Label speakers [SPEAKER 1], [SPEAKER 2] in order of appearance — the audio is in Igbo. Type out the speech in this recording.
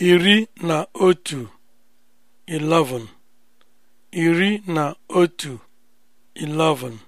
[SPEAKER 1] iri na otu 11 iri na otu 11